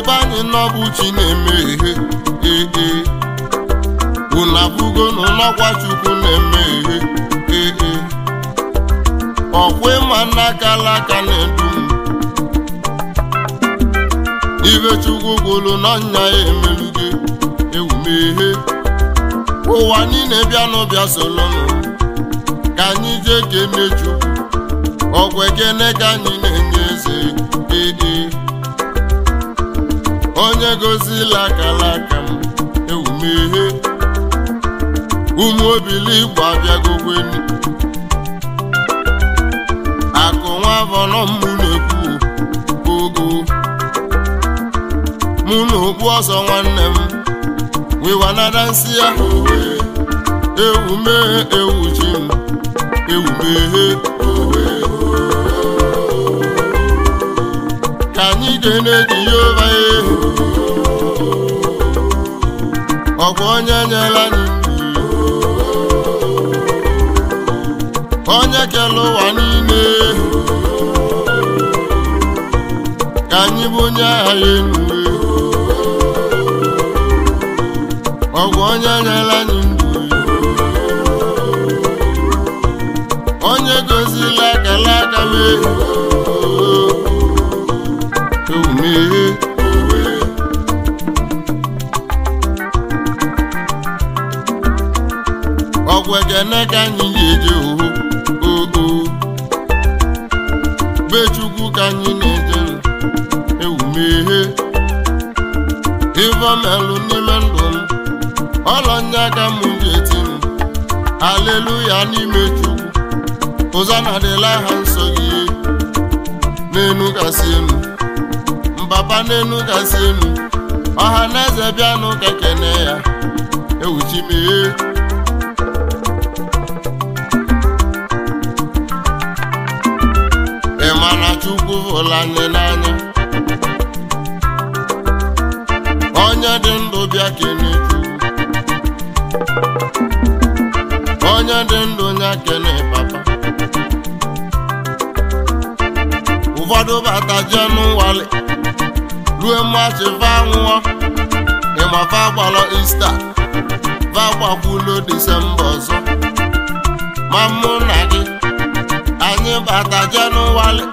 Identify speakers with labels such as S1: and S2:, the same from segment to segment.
S1: be anyị nọbụ chi na-eme ihe ee unu abụgo n'ụlọkwa chukwu na-eme ihe ee ọkwa ịma n'akala aka na edum m ibe chukwu gwụrụ n'ọnya ya emelugo ewumehe ụwa niile bịa n'ụbịa solonụ ka anyị jee kene chukwu ọgwụ ekene ka anyị na-enye eze onye gozila lakalaka m ewumeghe ụmụ obiligbo abịagogwenu akụ nwa avọnọmụ na-ekwu ogo mụ na okpu ọsọ nwanne m nsi ya owe ewume ewu m ewumeghe owe ka anyị ga-eneji ihe. ọkwa onye nyela anyị onye kele ụwa niile ka anyị bụ onye agha ya elu ọgwa onye nyela anyị ndụ onye gozila akala aka m ekene ka anyị ga-eje oo be chukwu ka anyị na-ejere ewumeghe ivemelụ n'ime ndụ m ọlọnya ka m ga-eti m aleluya n'ime chukwu ụzọ na-adịla ha nsọ gị n'enu enu mbaba n'enu gasị enu ọha na eze bịanụ ka kene ya ewuchi mee hụla nne n'anya onye dị ndụ bịa keneke onye dị ndụ nya kene papa ụfọdụ bata jee n'ụwali rue mmachi va nwụọ ịmafa gbalọ ista va gbakwulo disemba ọzọ ma mụ na gị anyị bata jee n'ụwali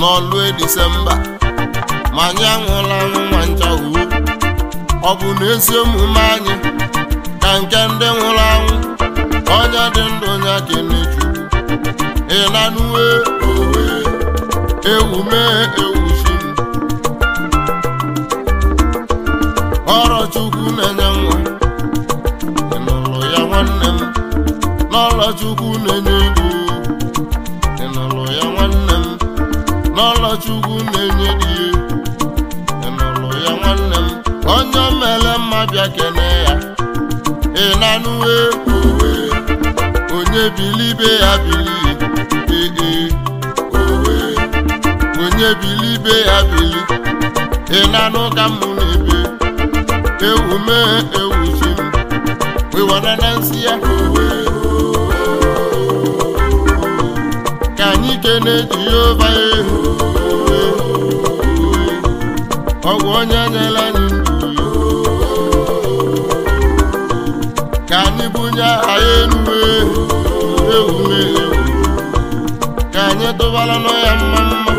S1: n'ọlụ e Disemba ma anyị aṅụla nwa nchahụ ọ bụ na ezi omume anyị na nke ndị nwụrụ anwụ onye dị ndụ onye kene Chukwu ịlanuwe owe ewu mee ọrọ Chukwu na-enye nwa ịnụrụ ya nwanne m n'ọlọ Chukwu na-enye ibu n'ọlọ Chukwu na-enye dị ihe n'ụlọ ya nwanne m onye mere mma bịa kene ya ịnanụ owe onye bilibe ya bili ee owe onye bilibe ya bili ịnanụ ka m na-ebe ewu mee ewu m wewara na nsị ya owe anyị kene Jehova ehu ọgwụ onye nyela anyị ndụ ka anyị bunye aha elu ehu ewume ka anyị tụbara n'ọya mma mma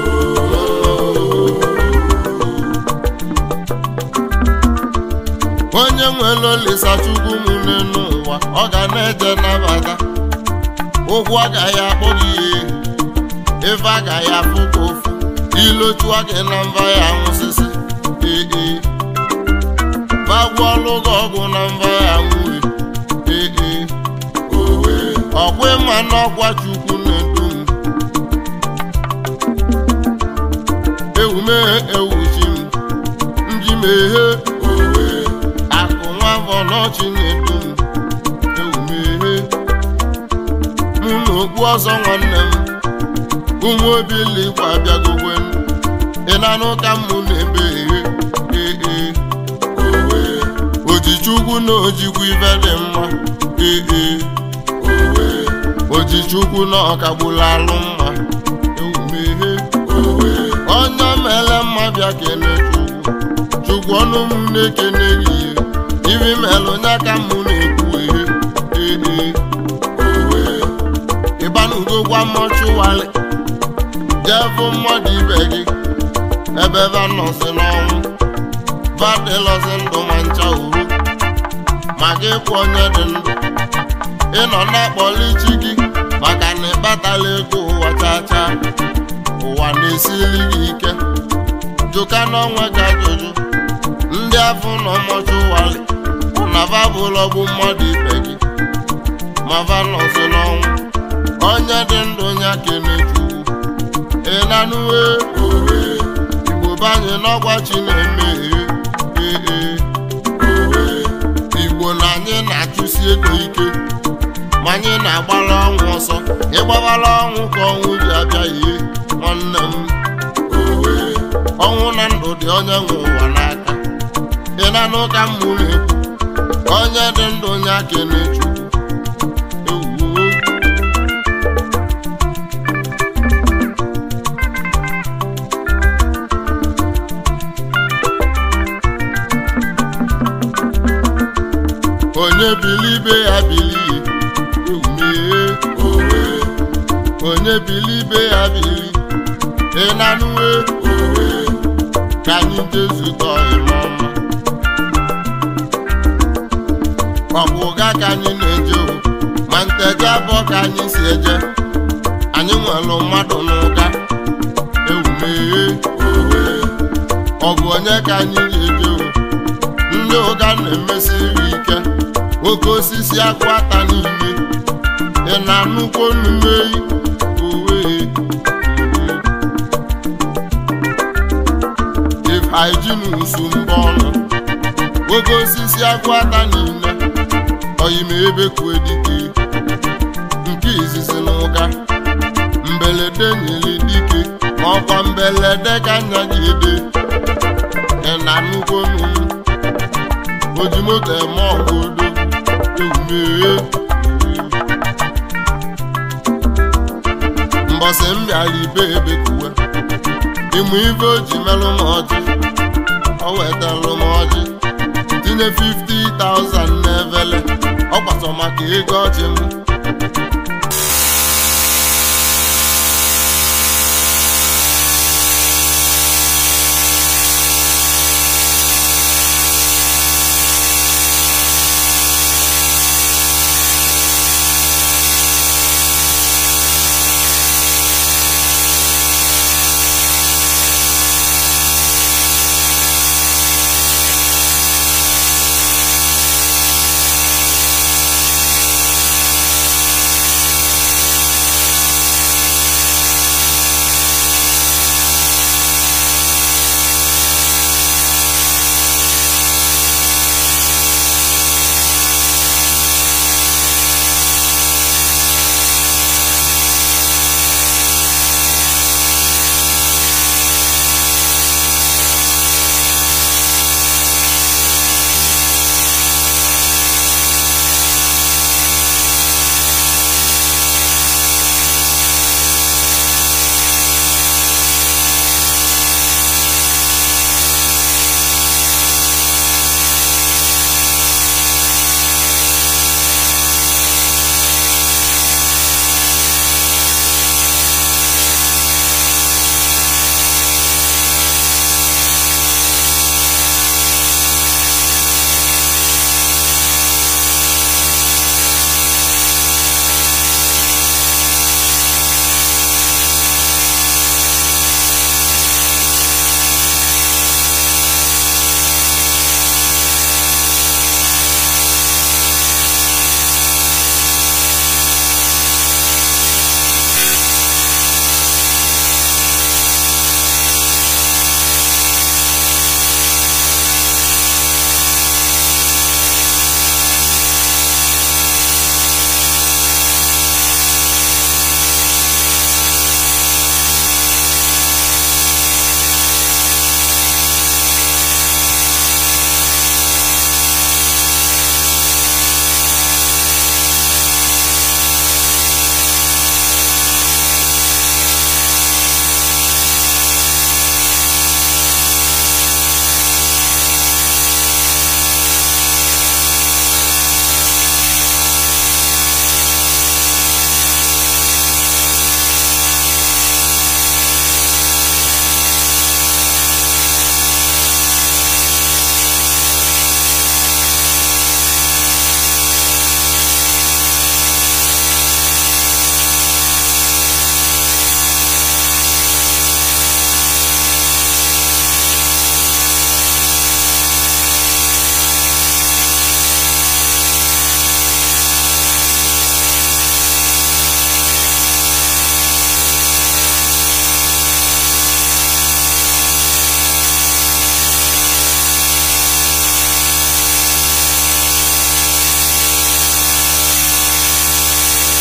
S1: onye nwere olisachukwu m n'ụwa ọ ga na-eje nabata ụgwọ agaghị akpọ gị ihe ife agaghị afụ ka ofu ilochua na mba ya nwụsịsị ee bagwuọlụ gị ọgwụ na mba ya nwụrụ nwụri ee ọkwa ịma n'ọkwa chukwu na-edu m ewumeghe ewuchi m nji meghe akụ nwa afọ n'ọchị na-edu m ewumeghe mụ ọzọ nwanne m ụmụ obiligbo abịagowe ị na-anụ ka mụ na-eme ee ee ojichukwu na ojikwu ibe dị mma ee ojichukwu na ọkagbula alụ mma ewumehe onye mere mma bịa kene chukwu chukwu ọnụ m na-ekene gị eh. ibi mere eh, eh, onye aka m na-ekwu ihe ee ịbanugo gwa mmọchụwalị jebụ mmadụ ibe gị ebe vanọsi n'ọnwụ badịlọzi ndụ ma ncha uru ma gị kwụ onye dị ndụ ị nọ na-akpọli chi gị maka na ịkpatala ego ụwa chachaa ụwa na-esili gị ike jụka n'ọnwa gị ajụjụ ndị afọ na ọmọchi ụwali na babụlọ bụ mmadụ ibe gị ma vanọsi n'ọnwụ onye dị ndụ onye aka emeju na nuwe e, igbo banye n'ọgwa chi na ee e, igbo na anyị na-achụsi ego ike ma anyị na-agbara ọnwụ ọsọ ịgbabara ọnwụ ka ọnwụ ji abịaghị nwanne m ọnwụ na ndụ dị onye nwe ụwa n'aka ị na-anụ ka m mụrụ ekwu onye dị ndụ onye aka na-echu onye bilibe ya bili umee owe onye bilibe ya bili ịnanuwe owe ka anyị jezutọ ịmọma ọ bụ ụga ka anyị na-eje ma nteje abụọ ka anyị si eje anyị nwere mmadụ n'ụga ewumee owe ọ bụ onye ka anyị na-eje ndị ụga na-emesiri emesi ike oke osisi akwata n'ime ị e na-anụkwa onume owe ifeijinsu mbọ ọnụ oke osisi akwata niile oyime ebe kwedike nke izizi n'ụka ụka mbelede nyere dike ọkwa mbelede ka nya gị ede ị na-anụkwa onume ojimoto eme ọgụ odo tume m bịara ibe ebe kuwe ịmụ ibe oji ji melụ m ọjị o wetalụ m ọjị tinye 50,000 n'evele ọ kwatọ maka ego ọjị m